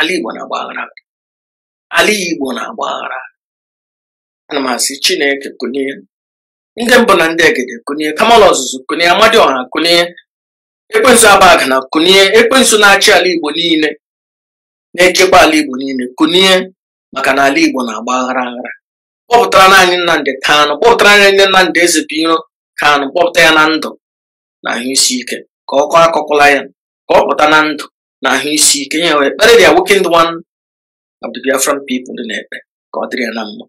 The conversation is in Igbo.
ala Igbo na-agba aghara ala Igbo na ana m asị Chineke kụnye ndị mbụ na ndị egede kụnye kamala ọzụzụ amadi amadioha kụnye ekwensu abaga na kụnye ekwensu na-achị ala Igbo niile na-echekwa ala Igbo niile kụnye maka na ala Igbo na-agba aghara aghara kpọpụtara naanị Nnamdị Kanụ kpọpụtara naanị Nnamdị Ezebiro Kanụ kpọpụta ya na ndụ na ahụ isi ike ka ọ kọọ ya ka ọ pụta na ndụ na ahụ isi ike ya wee kparịrị ya nwoke ndị nwan of the Biafran people dị na-ekpe ka ọ dịrị ya na mma